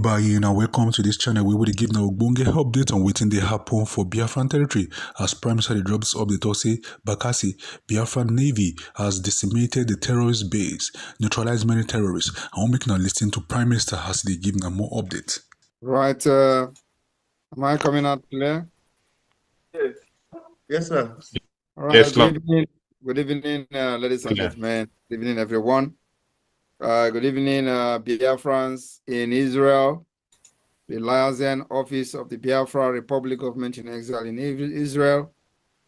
Ibayi and welcome to this channel where we give now Ogbonge update on waiting the happen for Biafran territory as Prime Minister drops of the Tosi Bakasi Biafran Navy has decimated the terrorist base, neutralized many terrorists. I want make now listen to Prime Minister as they give now more updates. Right, uh, am I coming out clear? Yes. Yes, sir. All right, yes, good evening, good evening uh, ladies and gentlemen. Good evening, everyone. Uh, good evening, uh, Biafrans in Israel, the Liaison Office of the Biafra Republic Government in Exile in Israel,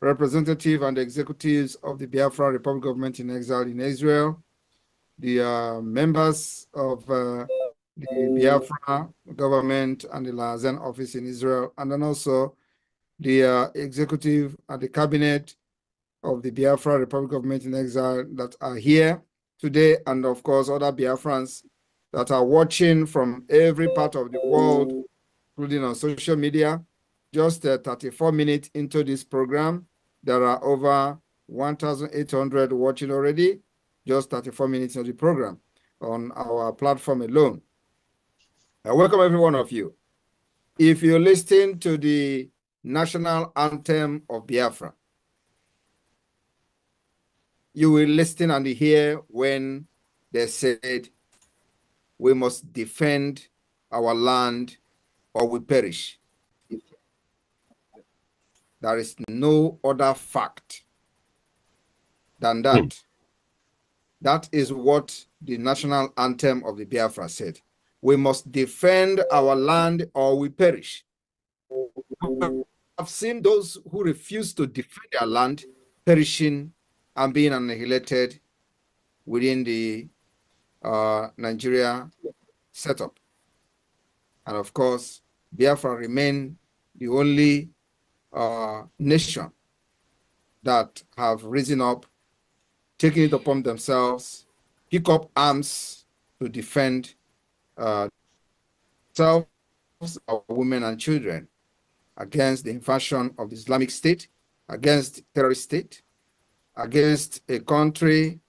representative and executives of the Biafra Republic Government in Exile in Israel, the uh, members of uh, the Biafra government and the Liaison Office in Israel, and then also the uh, executive and the cabinet of the Biafra Republic Government in Exile that are here today and of course other Biafrans that are watching from every part of the world, including on social media. Just uh, 34 minutes into this program, there are over 1,800 watching already, just 34 minutes of the program on our platform alone. I uh, welcome every one of you. If you listen to the national anthem of Biafra, you will listen and hear when they said, We must defend our land or we perish. There is no other fact than that. Mm. That is what the national anthem of the Biafra said. We must defend our land or we perish. I've seen those who refuse to defend their land perishing and being annihilated within the uh, Nigeria setup. And of course, Biafra remain the only uh, nation that have risen up, taken it upon themselves, pick up arms to defend uh, themselves, our women and children against the invasion of the Islamic State, against terrorist state, against a country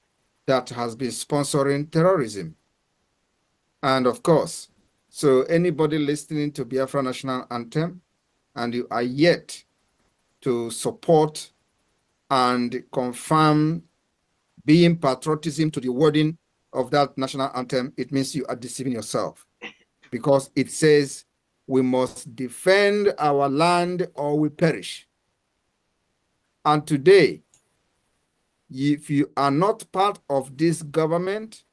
that has been sponsoring terrorism. And of course, so anybody listening to Biafra National Anthem and you are yet to support and confirm being patriotism to the wording of that national anthem, it means you are deceiving yourself because it says we must defend our land or we perish. And today, if you are not part of this government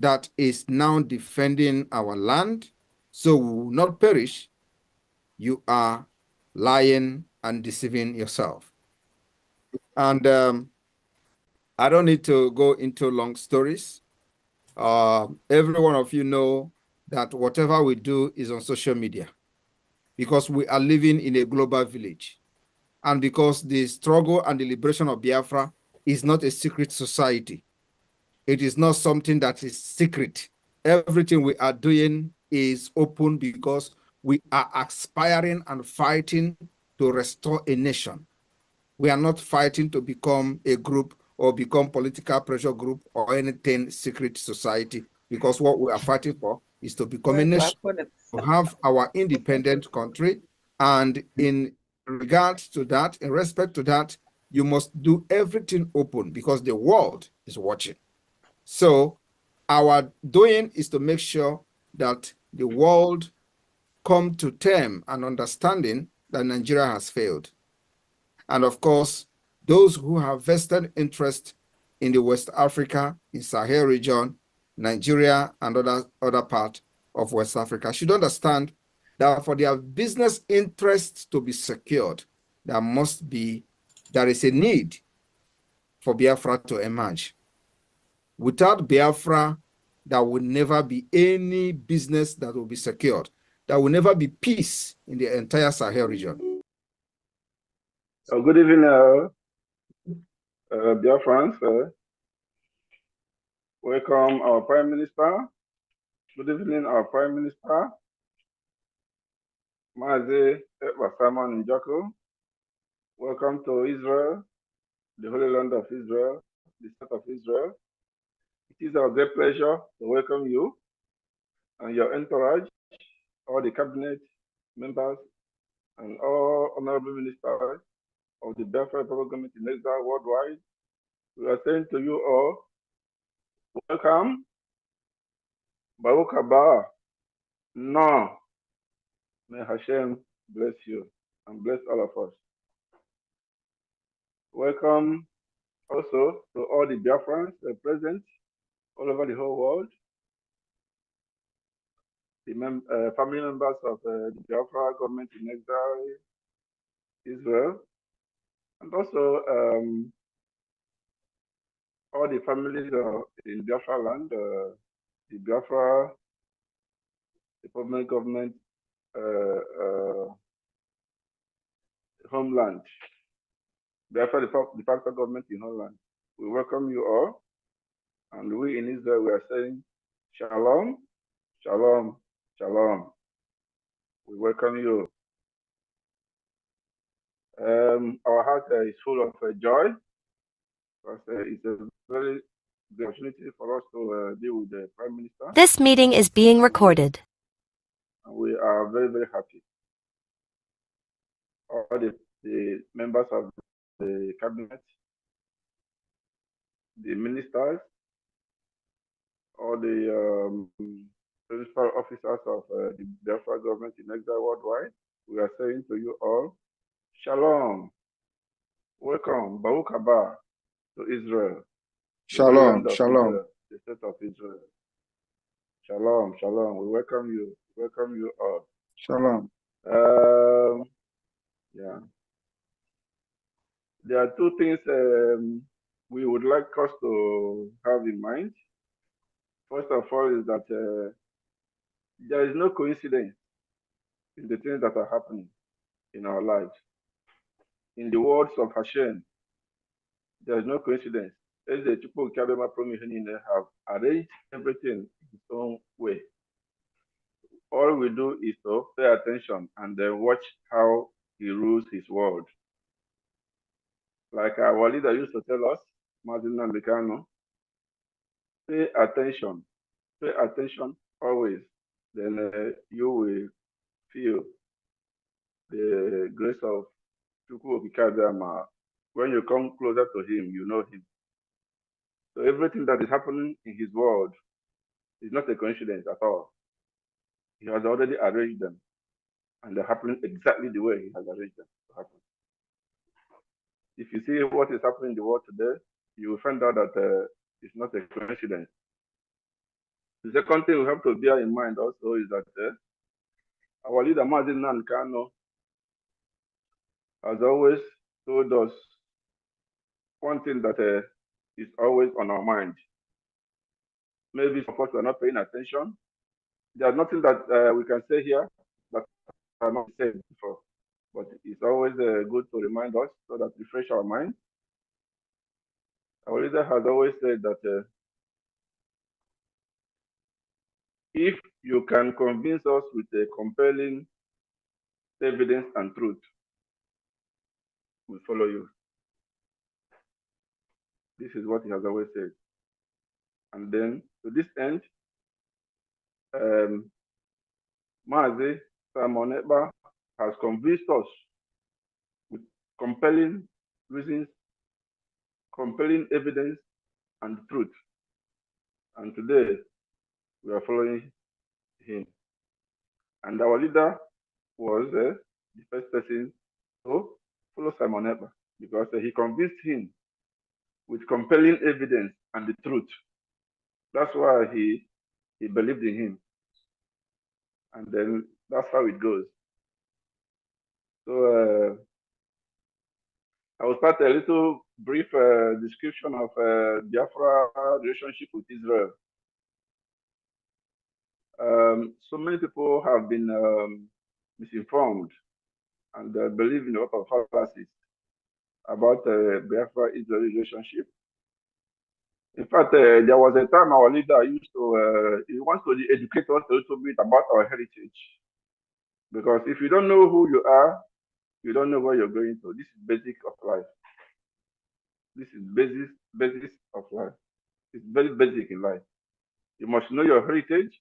that is now defending our land, so we will not perish, you are lying and deceiving yourself. And um, I don't need to go into long stories. Uh, every one of you know that whatever we do is on social media because we are living in a global village. And because the struggle and the liberation of Biafra is not a secret society. It is not something that is secret. Everything we are doing is open because we are aspiring and fighting to restore a nation. We are not fighting to become a group or become political pressure group or anything secret society because what we are fighting for is to become a nation, to have our independent country. And in regards to that, in respect to that, you must do everything open because the world is watching. So our doing is to make sure that the world come to term and understanding that Nigeria has failed. And of course, those who have vested interest in the West Africa, in Sahel region, Nigeria, and other, other part of West Africa should understand that for their business interests to be secured, there must be there is a need for Biafra to emerge. Without Biafra, there will never be any business that will be secured. There will never be peace in the entire Sahel region. Oh, good evening, uh, uh, dear friends. Uh, welcome our Prime Minister. Good evening, our Prime Minister. Mazi Basama Njako. Welcome to Israel, the Holy Land of Israel, the State of Israel. It is our great pleasure to welcome you and your entourage, all the cabinet members, and all honorable ministers of the Belfast Government in Israel worldwide. We are saying to you all, welcome, Baruch Haba, Now, may Hashem bless you and bless all of us. Welcome also to all the Biafrans present all over the whole world, the mem uh, family members of uh, the Biafra government in exile, Israel, and also um, all the families uh, in Biafra land, uh, the Biafra, the permanent government uh, uh, homeland. Therefore, the, the factor government in Holland, we welcome you all. And we in Israel, we are saying, Shalom, Shalom, Shalom. We welcome you. Um, our heart uh, is full of uh, joy because uh, it's a very good opportunity for us to uh, deal with the Prime Minister. This meeting is being recorded. And we are very, very happy. All the, the members of the cabinet, the ministers, all the um, principal officers of uh, the Biafra government in exile worldwide, we are saying to you all, Shalom. Welcome, Baruch Haba, to Israel. Shalom, Shalom. Israel, the state of Israel. Shalom, Shalom. We welcome you. Welcome you all. Shalom. Um, yeah there are two things um, we would like us to have in mind. First of all, is that uh, there is no coincidence in the things that are happening in our lives. In the words of Hashem, there is no coincidence. As the people have arranged everything in its own way. All we do is to pay attention and then watch how he rules his world like our leader used to tell us, Martin Nambikano, pay attention, pay attention always, then uh, you will feel the grace of Chukwu Okikadama. When you come closer to him, you know him. So everything that is happening in his world is not a coincidence at all. He has already arranged them, and they're happening exactly the way he has arranged them to happen if you see what is happening in the world today, you will find out that uh, it's not a coincidence. The second thing we have to bear in mind also is that uh, our leader, Mazin Nankano, has always told us one thing that uh, is always on our mind. Maybe of course we are not paying attention. There's nothing that uh, we can say here that I'm not saying before but it's always uh, good to remind us so that refresh our mind. Our leader has always said that uh, if you can convince us with a compelling evidence and truth, we follow you. This is what he has always said. And then to this end, um, Mazi Simon has convinced us with compelling reasons, compelling evidence, and truth. And today, we are following him. And our leader was uh, the first person to follow Simon Eber because uh, he convinced him with compelling evidence and the truth. That's why he, he believed in him. And then that's how it goes. So uh, I will start a little brief uh, description of uh, Biafra relationship with Israel. Um, so many people have been um, misinformed and uh, believe in a lot of fallacies about uh, Biafra Israel relationship. In fact, uh, there was a time our leader used to, uh, he wants to educate us a little bit about our heritage. Because if you don't know who you are, you don't know where you're going to. This is basic of life. This is basis basis of life. It's very basic in life. You must know your heritage.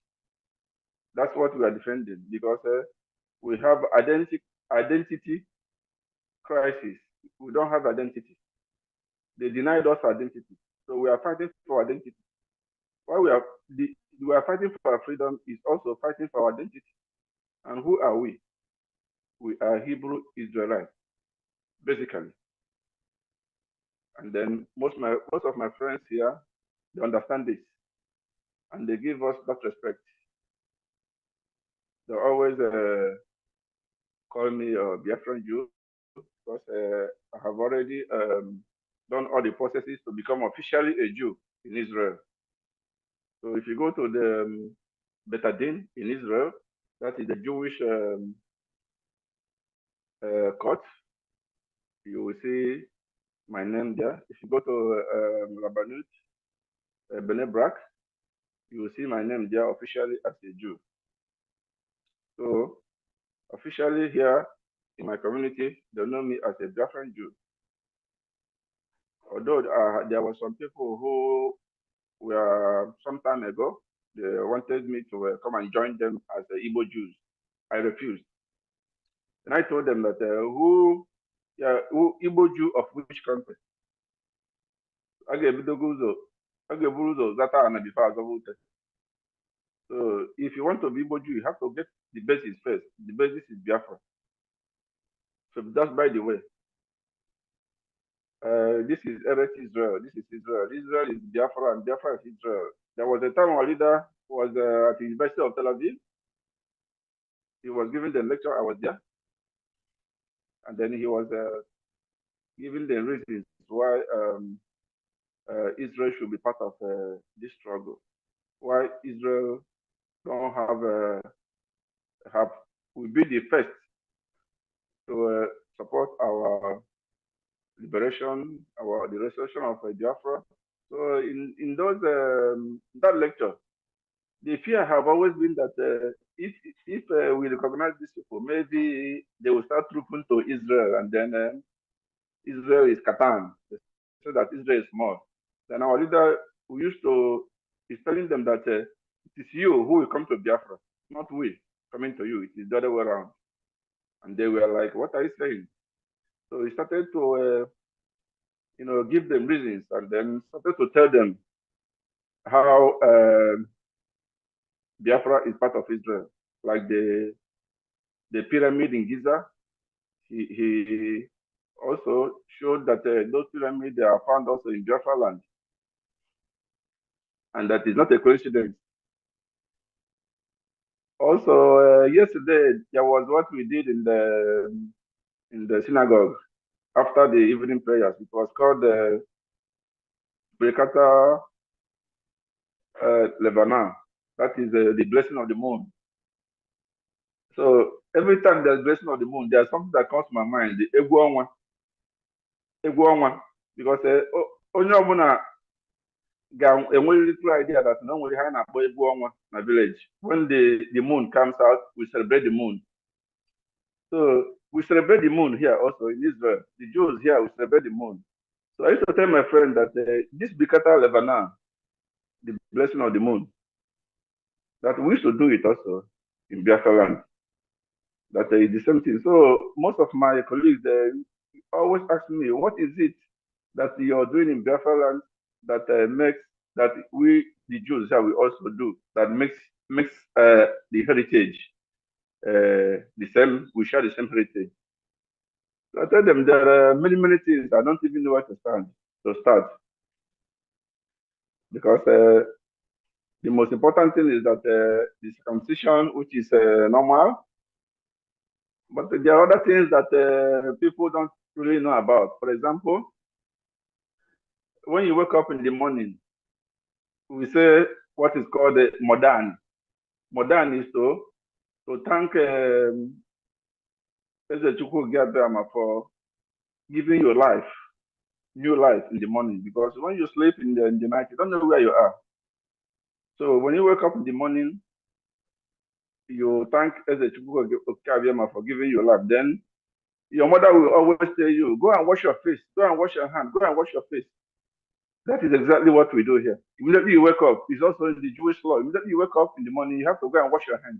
That's what we are defending because uh, we have identity identity crisis. We don't have identity. They denied us identity, so we are fighting for identity. Why we are the, we are fighting for our freedom is also fighting for our identity. And who are we? we are Hebrew Israelites, basically. And then most my most of my friends here, they understand this, and they give us that respect. They always uh, call me a uh, Biafran Jew because uh, I have already um, done all the processes to become officially a Jew in Israel. So if you go to the um, Betadin in Israel, that is the Jewish um, uh, court, you will see my name there. If you go to um, Rabanut uh, Benebrak, you will see my name there officially as a Jew. So, officially here in my community, they know me as a Biafran Jew. Although uh, there were some people who were some time ago, they wanted me to uh, come and join them as the Igbo Jews. I refused. And I told them that uh, who, yeah, who Igbo Jew of which country? I gave Bidoguzo, I gave Buruzo, Zata, and before Azavute. So if you want to be Igbo Jew, you have to get the basis first. The basis is Biafra. So that's by the way. Uh, this is Eretz Israel. This is Israel. Israel is Biafra, and Biafra is Israel. There was a time our leader was uh, at the University of Tel Aviv. He was giving the lecture. I was there and then he was uh, giving the reasons why um, uh, Israel should be part of uh, this struggle, why Israel don't have have will be the first to support our liberation, our the restoration of Biafra. So in in those um, that lecture, the fear have always been that uh, if if uh, we recognize these people, maybe they will start trooping to Israel, and then uh, Israel is catan, so that Israel is small. Then our leader who used to is telling them that uh, it is you who will come to Biafra, not we coming to you. It is the other way around. And they were like, "What are you saying?" So he started to, uh, you know, give them reasons, and then started to tell them how uh, Biafra is part of Israel, like the the pyramid in Giza. He, he also showed that uh, those pyramids are found also in Biafra land, and that is not a coincidence. Also, uh, yesterday there was what we did in the in the synagogue after the evening prayers. It was called the uh, Brekata uh, Lebanon that is the, the blessing of the moon. So every time there's blessing of the moon, there's something that comes to my mind, the Egwonwa. Egwonwa. Because uh, onye a very little idea that normally onwere ha na-akpọ in ọnwa village. When the, the moon comes out, we celebrate the moon. So we celebrate the moon here also in Israel. The Jews here, we celebrate the moon. So I used to tell my friend that uh, this Bikata Levana, the blessing of the moon, that we should do it also in Biafra land. That uh, is the same thing. So most of my colleagues they always ask me, what is it that you're doing in Biafra land that uh, makes that we the Jews that we also do that makes makes uh, the heritage uh, the same. We share the same heritage. So I tell them there are many many things. I don't even know where to start to start because uh, the most important thing is that uh, the circumcision, which is uh, normal, but there are other things that uh, people don't really know about. For example, when you wake up in the morning, we say what is called a uh, modern. Modern is to, to thank Ezechukwu um, Gabriel for giving your life, new life in the morning. Because when you sleep in the, in the night, you don't know where you are. So when you wake up in the morning, you thank Ezechukwu Okaviama for giving you life. Then your mother will always tell you, go and wash your face, go and wash your hand, go and wash your face. That is exactly what we do here. Immediately you wake up, it's also in the Jewish law. Immediately you wake up in the morning, you have to go and wash your hands.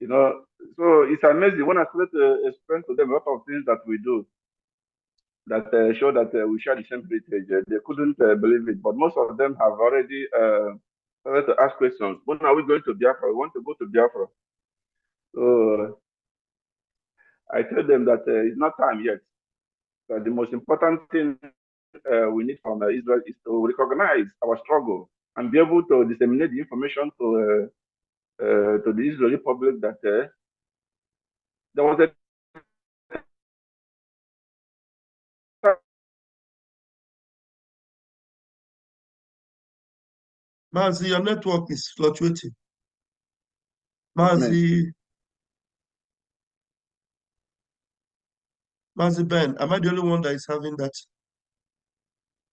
You know, so it's amazing when I started to explain to them a lot of things that we do that uh, show that uh, we share the same heritage. Uh, they couldn't uh, believe it, but most of them have already started uh, to ask questions. When are we going to Biafra? We want to go to Biafra. So I told them that it's not time yet. But the most important thing we need from Israel is to recognize our struggle and be able to disseminate the information to to the Israeli public that there was a Mazi, your network is fluctuating. Mazi. Mazi Ben, am I the only one that is having that?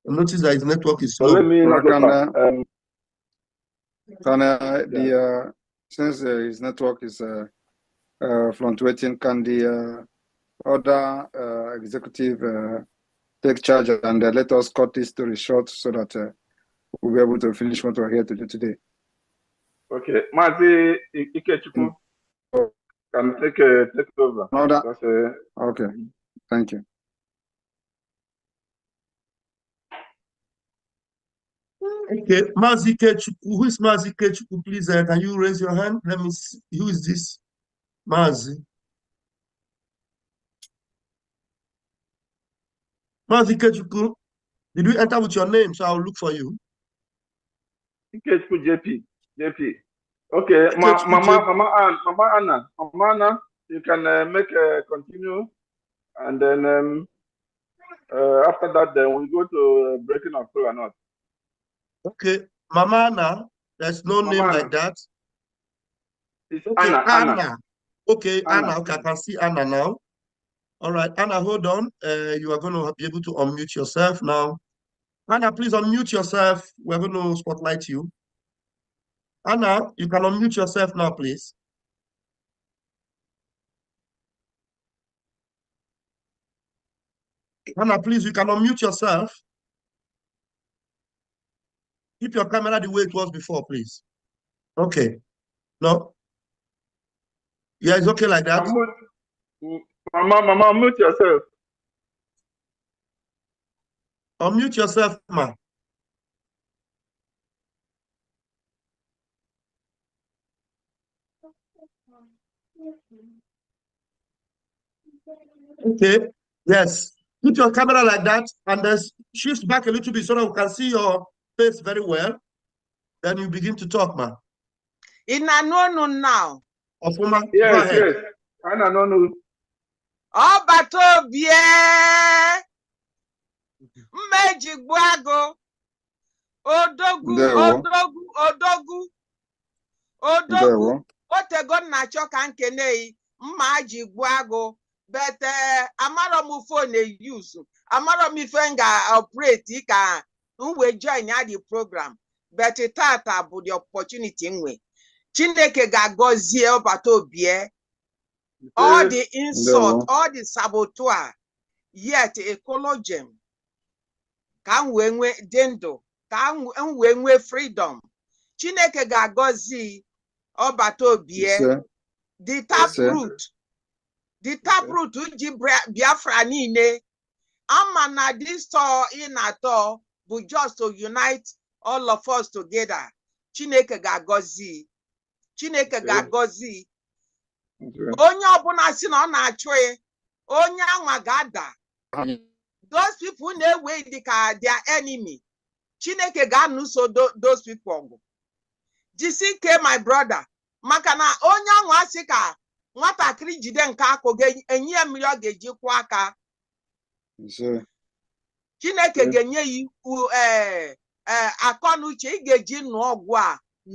I notice that his network is slow. let me can, uh, um, can the uh, since uh, his network is uh, uh, fluctuating, can the uh, other uh, executive uh, take charge and let us cut this story short so that we'll be able to finish what we're here to do today. Okay, Mazi Ikechuku, hmm. can take uh, take over. No, that, uh, okay, thank you. Okay, Mazi Ikechuku, who is Mazi Ikechuku? Please, uh, can you raise your hand? Let me see. Who is this? Mazi. Mazi Ikechuku, did you enter with your name? So I'll look for you. Kate JP. JP. Okay, Ma- Mama, Mama, Mama Anna, Mama Anna, you can uh, make a uh, continue, and then um, uh, after that, then we go to uh, breaking of or not. Okay, Mama Anna, there's no Mama name Anna. like that. It's Okay, Anna, Anna. Anna. Okay, Anna. Anna. Okay, I can see Anna now. All right, Anna, hold on. Uh, you are going to be able to unmute yourself now. Anna, please unmute yourself. We're going to spotlight you. Anna, you can unmute yourself now, please. Anna, please, you can unmute yourself. Keep your camera the way it was before, please. Okay. No? Yeah, it's okay like that. Mama, mama, mute yourself. Unmute yourself, ma. Okay, yes. Put your camera like that and then shift back a little bit so that we can see your face very well. Then you begin to talk, ma. In Anono now. Ofuma, yes, yes. Anonu. Obato bie. Eh? mma eji gbuo agụ odogwu odogwu odogwu odogwu otego nna chọ ka nkeneyi mma ji gbuo agụ bete amara m fon eyuzu amara m ife m ga-operate ka m wee join ya program bet tata bụ the opportunity nwe chineke ga-agọzie ọbata obie all the insult all the saboteur yet a ka m wee nwee dị ndụ ka m wee nwee fridọm chineke ga-agọzi ọbata obie dị taprut dị taprut ji biafra niile ama na distọ ị na-atọ bụ just to unite all of us together chineke ga-agọzi chineke ga-agọzi onye ọbụla si na ọ na-achụ onye anwa ga-ada those people na-ewe dị ka their enemy chineke ga-anụso those people ọgụ jisi ike my brother maka na onye ahụ asị ka nwatakịrị jide nke akụ ga-enye ya mmiri ọ ga-eji kwụ aka chineke ga-enye ya ikwu eh, eh, akọ na uche ị ga-eji nụ ọgwụ a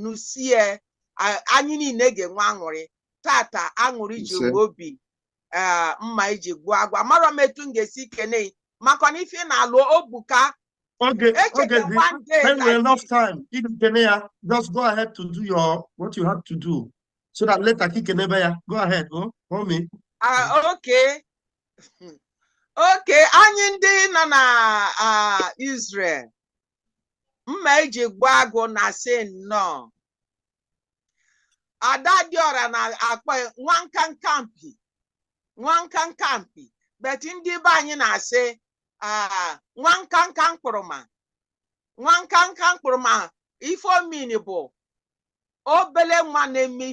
nụsie anyị niile ga-enwe aṅụrị tata aṅụrị ji obi eh, mma iji gbuo agwa mara m etu m ga-esi kene maka na ife na-alụ obuka Okay, okay. When we enough time, Ikene, just go ahead to do your what you have to do, so that later ya, go ahead, go, oh, me. Uh, ah, okay, okay. Anyị ndị nọ na ah, Israel, mma eji gwa agụ na si nnọọ. Ada dị Diora na-akpọ nwa nwankankampi, nwankankampi, but ndị be anyị na-asị. nwa nkanka mkpụrụma nwa nkanka ife omini bụ obere nwa na-eme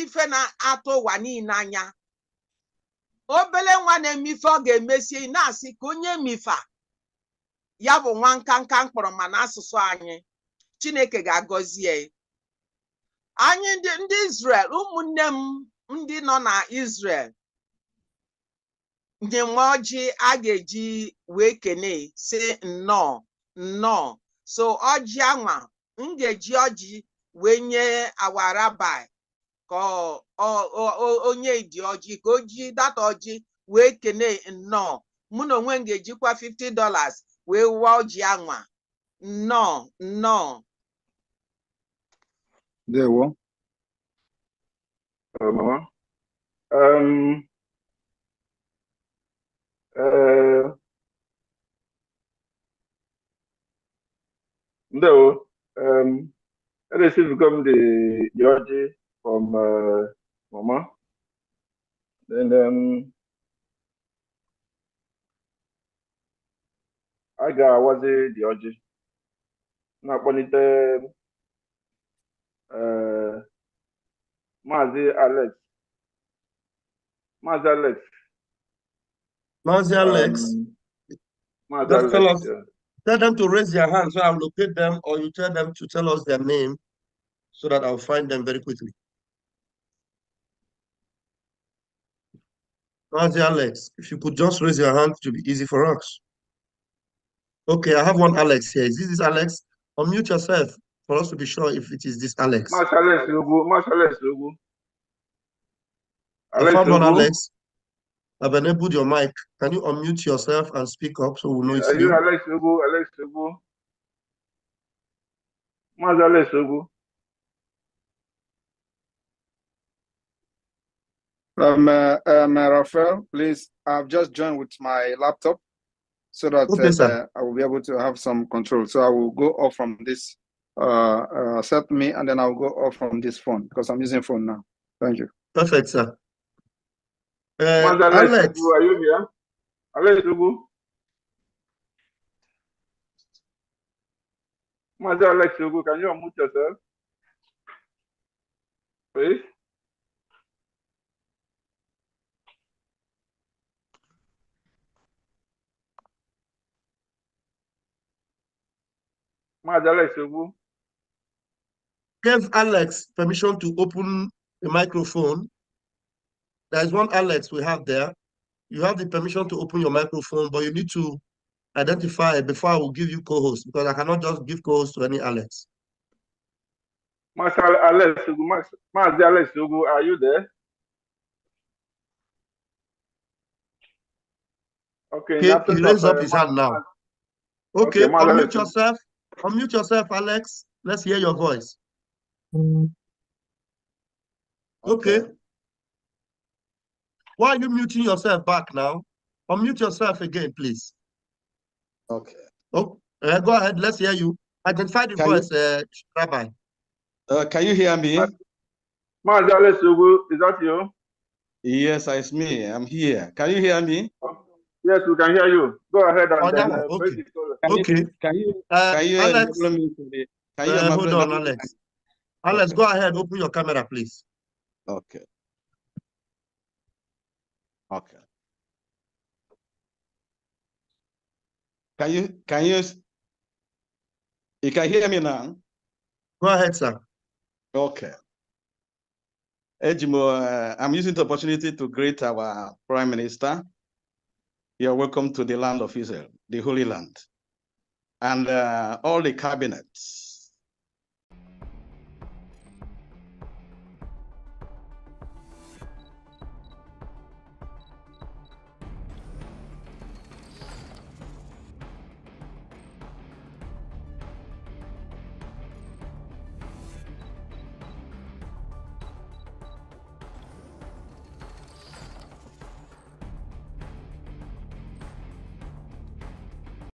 ife na-atụ ụwa niile anya obele nwa na-eme ife ọ ga emesi na-asị ka onye mifa ya bụ nwa nkanka mkpụrụma asụsụ anyị chineke ga-agọzie anyị ndị Israel ụmụnne m ndị nọ na Israel nwa ọjị a ga-eji wee kene si nnọọ nnọọ so ọjị anwa m ga-eji ọjị wee nye awarabi ka onye dị ọjị ka o ji data ọjị wee kene nnọọ mụ na onwe m ga-ejikwa 50 dollars wee wụọ ọjị anwa nnọọ nnọọ ndewo Ndewo. Um, I received come the from uh, Mama. Then um, ga the Na-akpọlite uh, e, mazi Alex. Alex Mazi Alex, um, Alex tell, us, yeah. tell them to raise their hands so I'll locate them, or you tell them to tell us their name so that I'll find them very quickly. Mazi Alex, if you could just raise your hand, it will be easy for us. Okay, I have one Alex here. Is this, this Alex? Unmute yourself for us to be sure if it is this Alex. Marsh Alex Lugu. Marsh Alex Lugu. Alex I found one Alex. Abene, put your mic. Can you unmute yourself and speak up so we know it's Are you. you Alex Ogo? Alex Ogo? Where's Alex Ogo? Um, uh, um, uh, Rafael, please. I've just joined with my laptop so that okay, uh, I will be able to have some control. So I will go off from this, uh, uh, set me, and then I'll go off from this phone because I'm using phone now. Thank you. Perfect, sir. Uh, Alex, Alex are you here? Alex Ugu? Mazi Alex Ugu, can you unmute yourself? Please? Mazi Alex Ugu? Give Alex permission to open the microphone there is one Alex we have there. You have the permission to open your microphone, but you need to identify before I will give you co-host because I cannot just give co-host to any Alex. Master Alex, Master Alex, are you there? Okay. He, he raised up his hand now. Okay, okay unmute Alex. yourself. Unmute yourself, Alex. Let's hear your voice. Mm. Okay. okay. Why are you muting yourself back now? Unmute yourself again, please. Okay. Oh, uh, go ahead. Let's hear you. Identify the can voice, you, uh, Rabbi. Uh, can you hear me? Marzales? is that you? Yes, it's me. I'm here. Can you hear me? Yes, we can hear you. Go ahead and oh, okay. Can okay. You, can you uh, can you Alex, me can you uh, hold on, Alex. Alex, okay. go ahead. Open your camera, please. Okay. Okay. Can you, can you, you can hear me now? Go ahead, sir. Okay. Ejimo, uh, I'm using the opportunity to greet our Prime Minister. You're welcome to the land of Israel, the Holy Land, and uh, all the cabinets